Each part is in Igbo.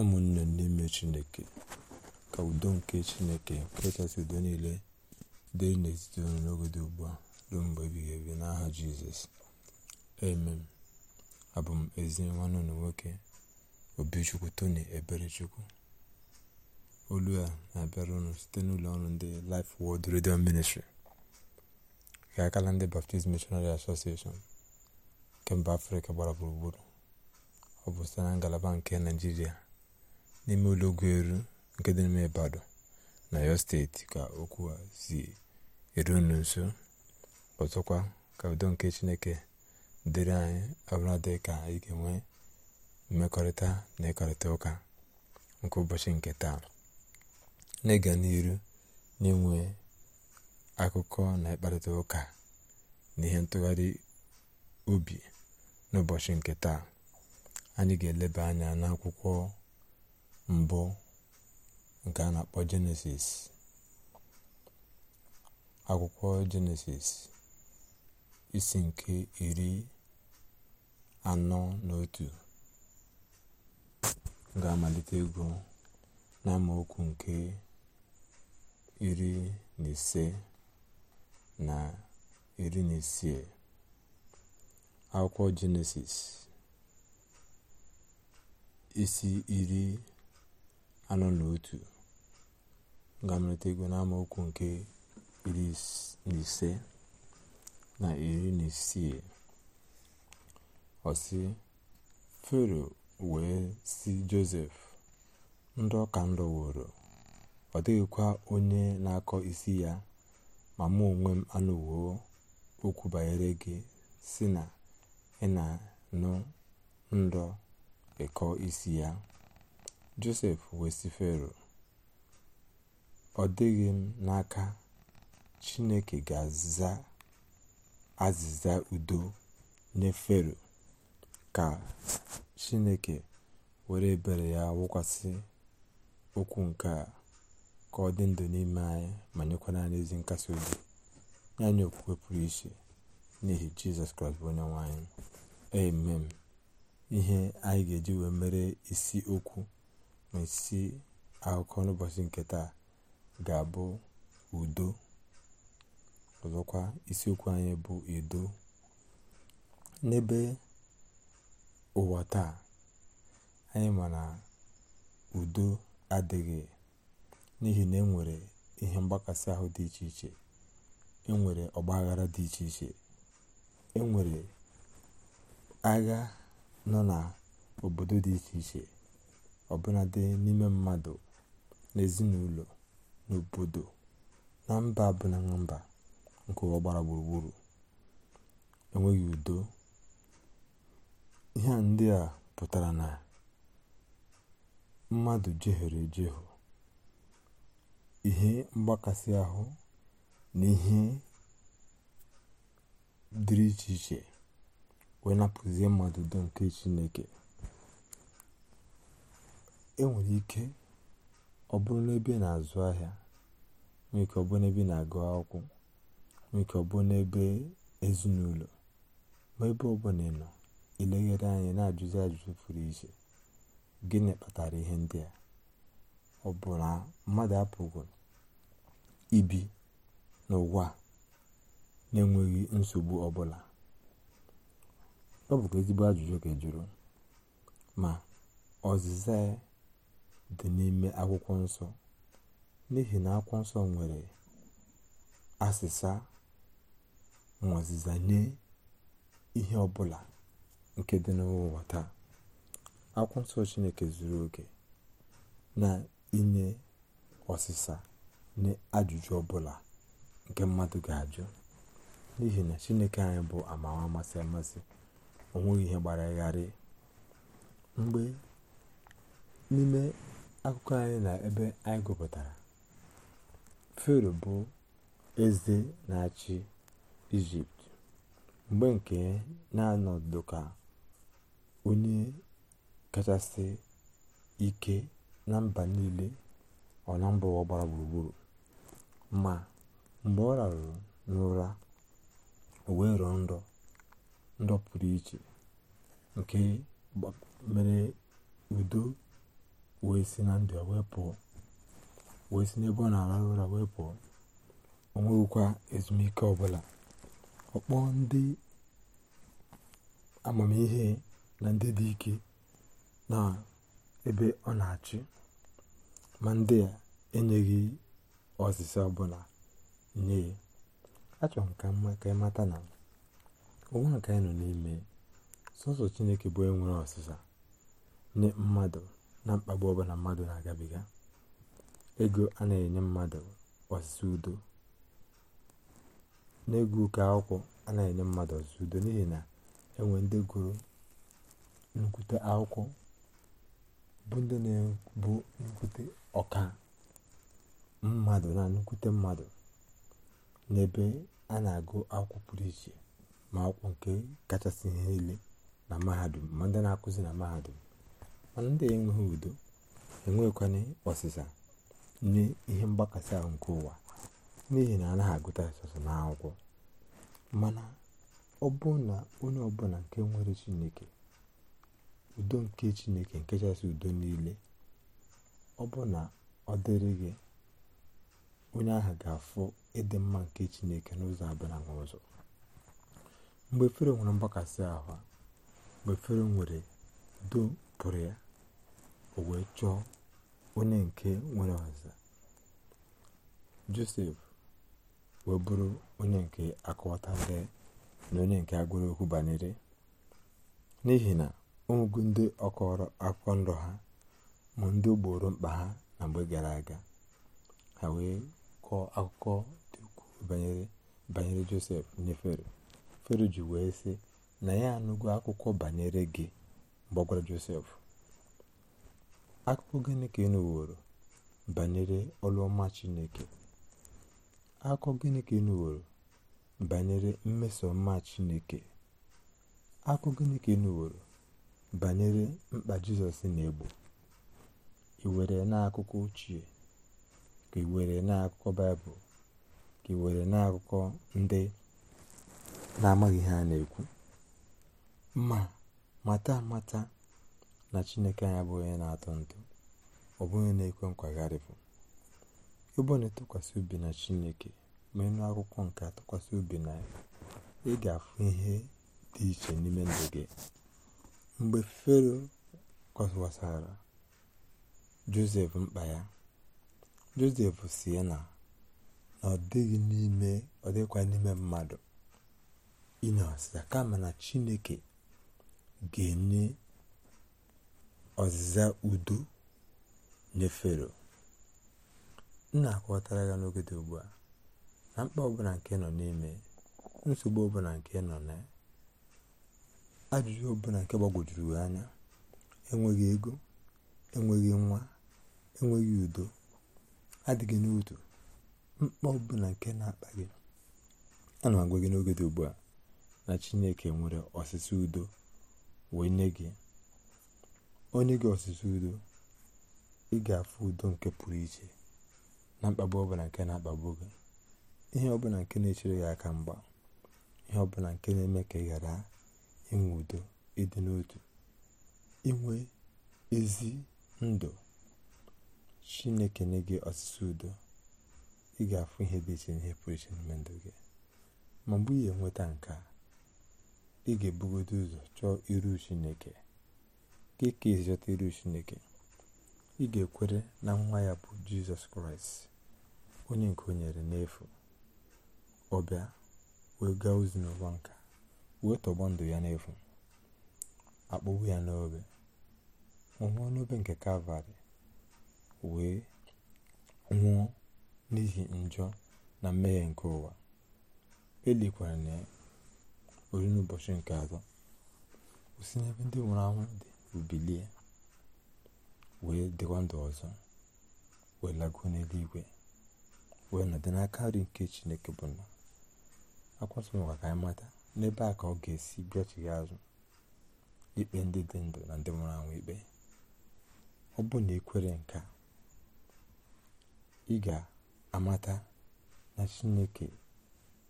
ụmụnne n'ime chineke ka udo nke chineke kachasị udo niile dịrị n'etiti unu n'oge dị ugbu a ruo mgbe ebighị ebi n'aha jizọs amen abụ m ezi nwanne unu nwoke obichukwu tony eberechukwu olu a na-abịara ụnụ site n'ụlọ ọrụ ndị Life Word Radio Ministry ka akala ndị Baptist Missionary Association nke mba Afrịka gbara gburugburu ọ bụ site na ngalaba nke naijiria. n'ime ụlọ ụgbọelu nke dị n'ime Ibadan na Ọyọ steeti ka okwu a si eru unu nso ọzọkwa ka udo nke Chineke dịrị anyị dị ka anyị ga-enwe mmekọrịta na ịkparịta ụka nke ụbọchị nke taa na-ịga n'iru na-enwe akụkọ na ịkparịta ụka na ihe ntụgharị obi n'ụbọchị nke taa anyị ga-eleba anya n'akwụkwọ mbụ nke a na-akpọ jenesis akwụkwọ jenesis isi nke iri anọ na otu ga-amalite ego n'amaokwu nke iri na ise na iri na isii akwụkwọ jenesis isi iri anọ na otu ga igwe ego n'amaokwu nke iri na ise na iri na isii ọsị fero wee si josef ndọ ka ndọ wụrụ ọ dịghịkwa onye na-akọ isi ya ma mụ onwe m anụwo okwu banyere gị si na ị na nụ ndọ ịkọ isi ya josef wee sị fero ọ dịghị m n'aka chineke ga-aza azịza udo nye ka chineke were ebere ya wụkwasị okwu nke a ka ọ dị ndụ n'ime anyị ma nyekwa anyị ezi nkasi obi ya okwukwe pụrụ iche n'ihi jizọs kraịst bụ onye nwanyị amen ihe anyị ga-eji wee mere isi okwu n'isi isi akụkọ n'ụbọchị nke taa ga-abụ udo ọzọkwa isiokwu anyị bụ edo n'ebe ụwa taa anyị ma na udo adịghị n'ihi na enwere ihe mgbakasị ahụ dị iche iche enwere ọgbaghara dị iche iche enwere agha nọ n'obodo dị iche iche ọbụnadị n'ime mmadụ n'ezinụlọ n'obodo na mba ọbụla mba nke ụwa gbara gburugburu enweghị udo ihe ndị a pụtara na mmadụ jehere ejehụ ihe mgbakasị ahụ na ihe dịrị iche iche wee napụzie mmadụ udo nke chineke enwere ike ọ bụrụ n'ebe na-azụ ahịa nwee ike ọ bụrụ n'ebe na-agụ akwụkwọ nwee ike ọ bụrụ n'ebe ezinụlọ ma ebe ọbụla ị nọ ileghere anya na-ajụzi ajụjụ pụrụ iche gịnị kpatara ihe ndị a ọ bụ mmadụ apụghị ibi n'ụwa na-enweghị nsogbu ọbụla ọ bụkwa ezigbo ajụjụ ga-ejuru ma ọzịza ya dị n'ime akwụkwọ nsọ n'ihi na akwụkwọ nsọ nwere asịsa ma nye ihe ọbụla nke dị n'ụwa taa akwụkwọ nsọ chineke zuru oke na inye ọsịsa nye ajụjụ ọbụla nke mmadụ ga-ajụ n'ihi na chineke anyị bụ amawa amasị amasị onweghị ihe gbara gharị mgbe n'ime akụkọ anyị na ebe anyị gụpụtara fero bụ eze na-achị ijipt mgbe nke na-anọdụ ka onye kachasị ike na mba niile ọ na mba ụwa gbara gburugburu ma mgbe ọ rarụrụ n'ụra o wee rọọ nrọ ndọ pụrụ iche nke mere udo wee si na ndụ wee wee si n'ebe ọ na ara ụra wee pụọ o nweghịkwa ezumike ọbụla ọkpọ ndị amamihe na ndị dị ike na ebe ọ na-achị ma ndị a enyeghị ọsịsa ọbụla nye ya achọrọ m ka mma ka ị mata na ụwa nke anyị nọ n'ime sọsọ chineke bụ enwere ọsịsa nye mmadụ na mkpagbu ọbụla mmadụ na-agabiga ego a na-enye mmadụ ọzụzụ udo n'ego akwụkwọ a na-enye mmadụ ọzụzụ udo n'ihi na enwe ndị gụrụ nnukwute akwụkwọ bụ ndị na-ebu nnukwute ọka mmadụ na nnukwute mmadụ n'ebe a na-agụ akwụkwọ pụrụ iche ma akwụkwọ nke kachasị ihe niile na mahadum ma ndị na-akụzi na mahadum mana ndị enweghị udo enweghịkwana ọsịsa nye ihe mgbakasị ahụ nke ụwa n'ihi na anaghị agụta sọsọ n'akwụkwọ mana ọ bụ na onye ọbụla nke nwere chineke udo nke chineke nke chasị udo niile ọ bụ na ọ dịrị gị onye ahụ ga-afụ ịdị mma nke chineke n'ụzọ abụla na ụzọ mgbe fero nwere mgbakasị ahụ mgbe fero nwere udo pụrụ ya o wee chọọ onye nke nwere ọza josef wee bụrụ onye nke akọwatara na onye nke agwụrụ okwu banyere n'ihi na ụmụgụ ndị ọkọrọ akwụkwọ ndụ ha ma ndị gboro mkpa ha na mgbe gara aga ha wee kọọ akụkọ dị ukwuu banyere banyere josef nye fero fero ji wee sị na ya anụgo akụkọ banyere gị mgbe ọ gwara josef akụkọ gịnị ka ị nụworo banyere ọlụ ọma chineke akụkọ gịnị ka ị nụworo banyere mmeso ọma chineke akụkọ gịnị ka ị nụworo banyere mkpa jizọs na-egbo ị were n'akụkọ ochie ka ị were n'akụkọ baịbụl ka ị were n'akụkọ ndị na-amaghị ihe a na-ekwu ma mata mata na chineke anya bụ onye na atụ ntụ ọ bụ onye na-ekwe nkwagharịpụ ịbụ na ịtụkwasị obi na chineke ma menụ akwụkwọ nke atụkwasị obi na ya ị ga-afụ ihe dị iche n'ime ndụ gị mgbe fero kwasara josef mkpa ya josef si na na ọ dịghị n'ime ọ dịkwa n'ime mmadụ ịnọsịa kama na chineke ga-enye ọzịza udo nye fero m na-akọwatara ya n'oge dị ugbu a na mkpa ọbụla nke nọ n'ime nsogbu ọbụla nke nọ na ajụjụ ọbụla nke gbagwojuru anya enweghị ego enweghị nwa enweghị udo adịghị n'udo mkpa ọbụla nke na-akpa gị ana m agwa gị n'oge dị ugbu a na chineke nwere ọsịsa udo wee nye gị onye gị ọsụsụ udo ị ga-afụ udo nke pụrụ iche na mkpagbu ọbụla nke na-akpagbu gị ihe ọbụla nke na-echere gị aka mgba ihe ọbụla nke na-eme ka ị ghara inwe udo ịdị n'otu inwe ezi ndụ chineke nye gị ọsụsụ udo ị ga-afụ ihe dị iche n'ihe pụrụ iche n'ime ndụ gị ma mgbe ị ga-enweta nke a ị ga-ebugodo ụzọ chọọ iru chineke gị ka esi chọta iru chineke ị ga-ekwere na nwa ya bụ jizọs kraịst onye nke o nyere n'efu ọ bịa wee gaa ozi n'ụwa nka wee tọgbọ ndụ ya n'efu akpọgbu ya n'obe nwụọ n'obe nke kalvarị wee nwụọ n'ihi njọ na mmehie nke ụwa elikwara na ya n'ụbọchị nke atọ osi n'ebe ndị nwụrụ anwụ dị bilie wee dịkwa ndụ ọzọ wee lago n'eluigwe wee nọdị n'aka nri nke chineke bụ na akwasịkwa ka anyị mata n'ebe a ka ọ ga-esi bịachighị azụ ikpe ndị dị ndụ na ndị nwụrụ anwụ ikpe ọ bụ na ikwere nke ị ga-amata na chineke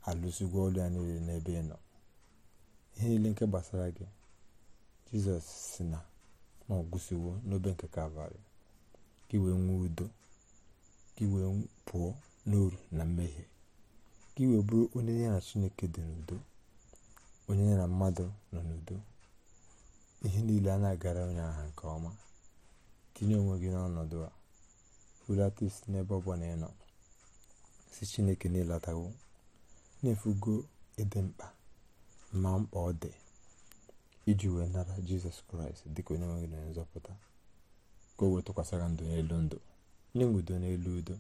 alụzigo ọlụ ya niile n'ebe ị nọ ihe niile nke gbasara gị jizọs si na ma ọ gwụsịwo n'obe nke kalvarị ka iwee nwee udo ka iwee pụọ n'oru na mmehie ka iwee bụrụ onye ya na chineke dị n'udo onye ya na mmadụ nọ n'udo ihe niile a na-agara onye aha nke ọma tinye onwe gị n'ọnọdụ a hulata n'ebe ọbụla bụla ị si chineke na-elatawo na-efugo ịdị mkpa ma mkpa ọ dị iji wee nara jizọs kraịst dịka onye nwe gị na nzọpụta ka o wee gị ndụ n'elu ndụ nye m udo n'elu udo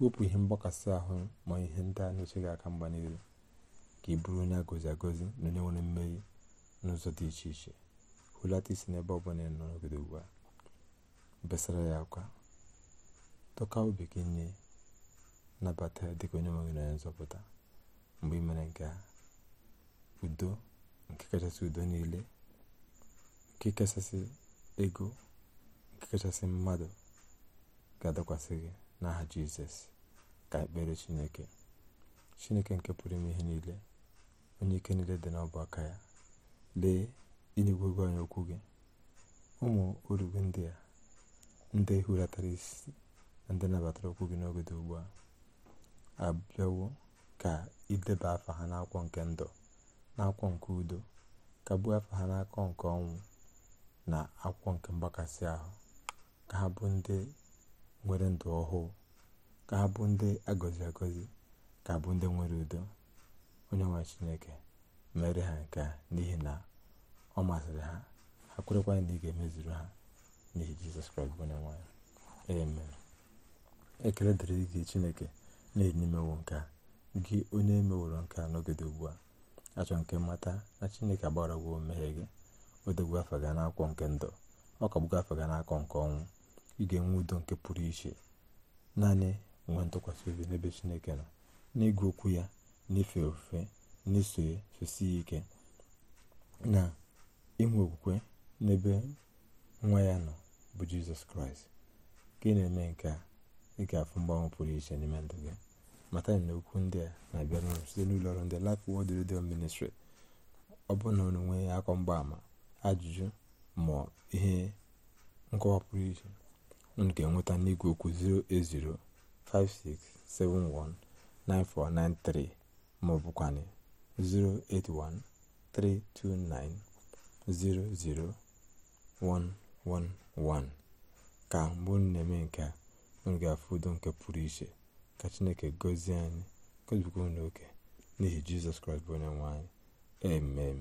wepụ ihe mgbakasị ahụ ma ihe ndị a na-eche gị aka mgba n'ihu ka ị bụrụ onye agozi agozi na onye nwere mmeri n'ụzọ dị iche iche hụlata isi n'ebe ọ bụla ị nọ n'obodo ugbu a besara ya akwa tọka obi gị nye nabata ya dịka onye nwe gị na nzọpụta mgbe ị mere nke a udo nke kachasị udo niile nke kachasị ego nke kachasị mmadụ ga-adakwasị gị n'aha jizọs ka ekpere chineke chineke nke pụrụ ime ihe niile onye ike niile dị n'ọbụ aka ya lee inyegwego anyị okwu gị ụmụ orugbu ndị a ndị hulatara isi na ndị nabatara okwu gị n'oge dị ugbu a abịawo ka ideba afa ha n'akwụkwọ nke ndụ n'akwụkwọ nke udo ka afọ ha n'akọ nke ọnwụ na akwụkwọ nke mgbakasị ahụ ka ha bụ ndị nwere ndụ ọhụụ ka ha bụ ndị agọzi agọzi ka bụ ndị nwere udo onye nwe chineke mere ha nke a n'ihi na ọ masịrị ha ha kwerekwa na ị ga-emezuru ha n'ihi jizọs kraịst bụ onye nwanyị amen ekele dịrị gị chineke na na imewo nke a gị onye emeworo nke a nọgide ugbu a achọ nke mmata na chineke agbara gwo mmehie gị o dogbu afa gị n'akwụkwọ nke ndụ ọ kagbugo afọ gị n'akọ nke ọnwụ ị ga-enwe udo nke pụrụ iche naanị nwee ntụkwasị obi n'ebe chineke nọ n'ịgụ okwu ya n'ife ofufe n'iso fesi ike na inwe okwukwe n'ebe nwa ya nọ bụ jizọs kraịst ka na-eme nke a ị ga-afụ mgbanwe pụrụ iche n'ime ndụ gị mata na okwu ndị a na-abịa n'ọrụ site n'ụlọ ọrụ ndị Life Word Radio Ministry ọ bụrụ na onwe ya akọ mgbaama ajụjụ ma ihe nkọwa pụrụ iche unu ga-enweta n'igwe okwu 08056719493 ma ọ bụkwanị 08132900111 ka mgbe unu na-eme nke a unu ga-afụ udo nke pụrụ iche ka chineke gọzie anyị gọzibikwa unu oke n'ihi jizọs kraịst bụ onye nwe anyị amen